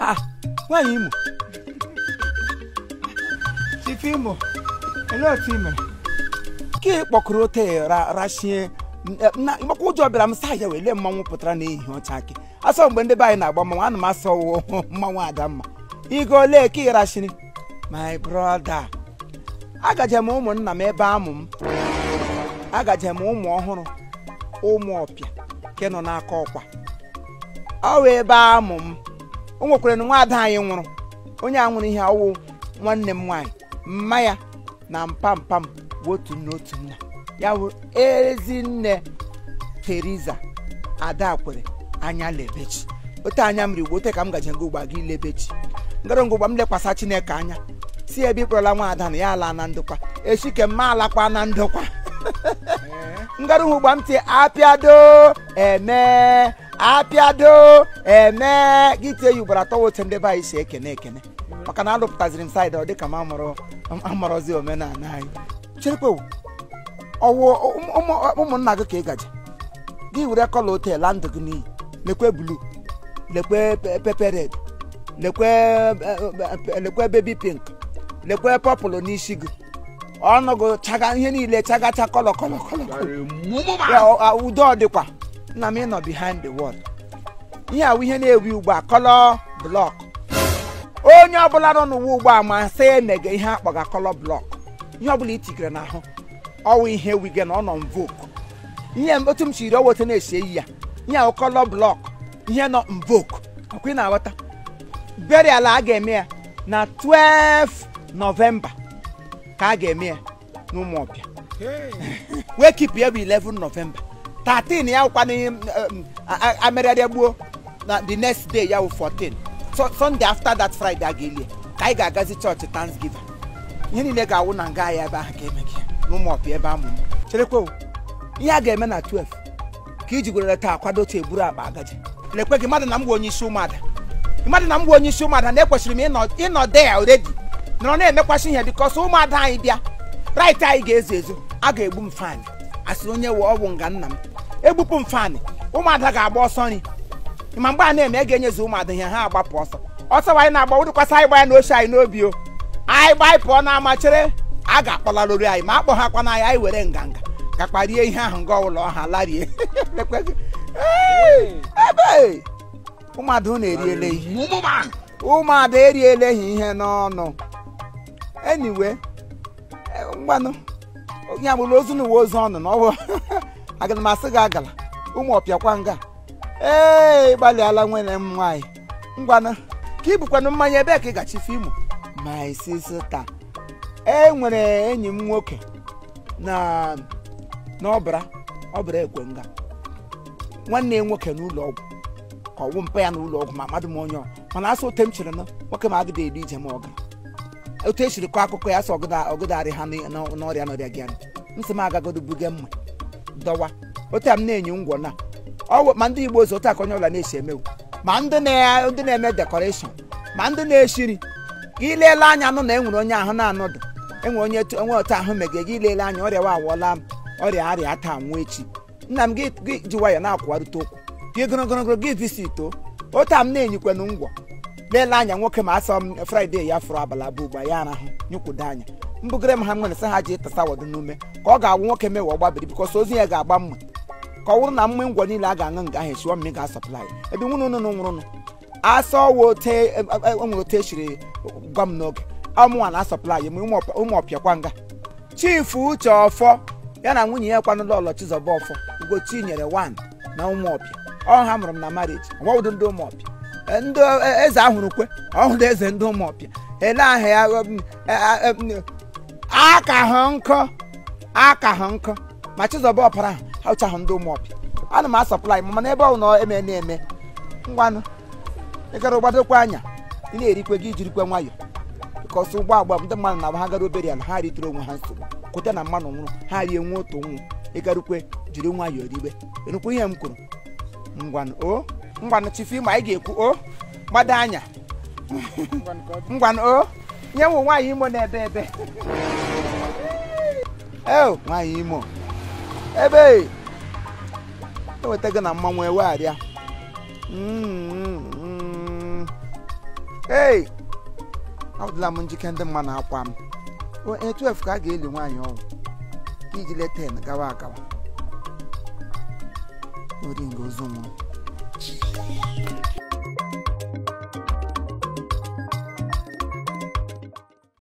ah nwaanyị imo ife imo ele otu ime mere ka ị kpọkụrụ ote rashie maka ụjọ bịara m saa ya lee mmanwụ eh, pụtara na n'ehihie ọcha akị asọ mgbe ndị be anyị na-agba mmanwụ ana m asọ mmanwụ adamma igo ole ka ị rashiri my brother agaje m ụmụnna m ebe amụ m agaje m ụmụ ọhụrụ ụmụ ọpịa nke nọ n'aka ọkwa ọ wee ebe amụ m o nwekwara na nwaada anyị nwụrụ onye a nwụrụ ihe ọwụ nwanne m nwaanyị mma ya na mpampam m otu nna otu nna ya bụ ezinne Teriza Adakwere anya lebechi ote anya mmiri igbo ote ka m gaji ngụ ụgba gị lebechi ngara ngụgba m lekwasa Chineke anya si ebe ịkpọrọla nwaada na ya ala na ndokwa echi ke ma alakwa na ndokwa ngarụ hụ gba m apịado eme apịado eme gị tie ya ugboro atọ wote ndị be anyị si ekene ekene maka na alụpụtaziri m saịdị ọ dịka m amụrụ amụrụzi omenala anyị cherekwe ọwụ ụmụnna gị ka ị gaji gị were kọla otel la ndụ gị n'iyi lekwe blu lekwe pepe red lekwe e, e, e, lekwe bebi pink lekwe pọpụlụ n'isi gị ọnọgo chaga ihe niile chagacha cha kọlọ kọlọ udo ọ dịkwa nna m ịnọ behind the wall ihe awụ ihe na-ewi ugbu a kọlọ blọk onye ọbụla nọ n'ụwa ugbu a ma sị emege ihe akpọga kọlọ blọk ihe ọbụla itigere n'ahụ ọwụ ihe wige na ọ nọ mvoke ihe otu m chiri ọwa otu na-esi eyi ya ihe awụ kọlọ blọk ihe nọ mvoke ọkwa ị na-aghọta burial a ga-eme ya na 12 nọvemba ka a ga-eme ya ọbịa wee kipụ ya bụ 11 novemba 13 ya wụkwa um, um, amịrịrịa gbuo na the next day ya wụ 14 sunday after that friday a ga-eli ka anyị ga-agazi chọọchị thanksgiving ihe niile ga-awụ na nga ya ebe ahụ ka gị e n'ụmụ n'ụmụọbịa ebe amụmụ cherekwa ihe a ga-eme na 12 ka iji gwerere taa kwado otu eburu akpa agaji lekwe gị mmadụ na m bụ onye isi ụmụada mmadụ na m bụ onye isi ụmụada na ekwesịrị m ịnọ ịnọ there already nọrọ na-emekwasị ihe bikọsọ ụmụada anyị bịa right anyị ga-ezo ezu a ga-egbu m faanị asịrị onye we ọgwụ nga nna m egbupụ m faanị ụmụada ga-agba ọsọ nri ma mgbe a na-eme a ga-enyezi ụmụada ihe ha agbapụ ọsọ ọsọ anyị na-agba wụrụkwasị anyị gbanya na oche anyị n'obi o anyị gbanyị anyị pụọ na amachere a ga-akpọlarụri anyị ma akpọ ha kwana anyị anyị were nganga gakpa ihe ahụ nga ụlọ ọha larie ebe ụmụada ụmụada eriele ha ihe n'ọnụ anyway ngwanụ ya bụrụ ozu na uwe ozu ọnụ na ọbụ aga m asị gị agala ụmụ ọpịakwa nga ee gbalịala nwere m nwaanyị ngwanụ ka ị bụkwanụ mmanya ebe ka ị gachife imo my sister e nwere enyi m nwoke na n'ọbara ọbara ekwe nga nwanne ya nwoke n'ụlọ ọgwụ ka ọwụ mpa ya n'ụlọ ọgwụ ma mmadụ m onye mana asụ ote m chere na nwoke m agịda eri ije ma ọ otu esiri kọọ akụkọ ya sị ọgụdarị ha n'ọrịa n'ọrịa gị anụ nsị m agagodo buge mma dọwa otu a m na-enye ngwọ na ọwụ ma ndị igbo ozi otu aka onye ọla na-esi emewu ma ndị na-eme dekọreshọn ma ndị na-eshiri ka ileele anya anụ na e nwere onye ahụ na-anọdụ enwere onye enwe otu ahụ megide gị ilele anya ọrịa wa awụọla ọrịa arịa taa nwa echi nna m gị ji nwayọ na-akwụwarịta okwu gị gịrịgịrịgịrị gị visi ito otu a m na-enyikwanụ ngwọ leele anya nwoke ma asọ m fraịde ya fụrụ abala abụ ugbu a ya arahụ nyụkwudo anya mbugere m ha nwere sị ha ji tasa wọdụ n'ume ka ọ ga-awụ nwoke mewe ọgbabiri bikọs ozi ya ga-agba mma ka ọ wụrụ na mma ngwọ niile a ga-aṅụ nga ahụ esiwo mmiri ga-asọplai ebe nwụrụ nụnụ nwụrụ asa owe nwere ote e, e, e, gwa m n'oge ọmụnwa na asọplai m ụmụ ọpịakwa nga chifu uche ọfọ ya na nwunye ya kwanụ ọlọ chizọba ọfọ ugochi nyere wan na ụmụọpịa ọ ha mụrụ m na mariji ọgwawụdo ndị ụmụọpịa ndị e, eze ahụrụ kwe ọhụrụ eze ndị ụmụọpịa ele ahụ e, ya aka ha nkọ aka hụ nkọ ma chizọba ọpara ha ụchahụ ndị ụmụọpịa ana m asọpụla anyị mana ebe ọ na eme na-eme ngwanụ ịgara gbadokwa anya ị na-erikwe gị ijirikwe nwayọ ka ọsọ ụgbọ agba ndị mmadụ na ha gara obere ala ha ritere onwe ha nsogbu kwute na mmanụ nwụrụ ha rie nwe otu nwụ ịgarukwe jiri nwayọọ ribe enukwu ihe m kwuru ngwanụ o ngwanụ chifu ma anyị e ga-ekwu o gbado anya ngwanụ o nye wụ nwaanyị imo na-ebe ebe eo nwaanyị e imo ebe eweta gị na mmanwụ ewegharịa mm-hmm. ei adịla m njike ndị mma na-akwa m onye 12 e ka a ga-eli nwaanyị ọnwụ iji leta gawa agawa oringo ozu nwụrụ Thank you.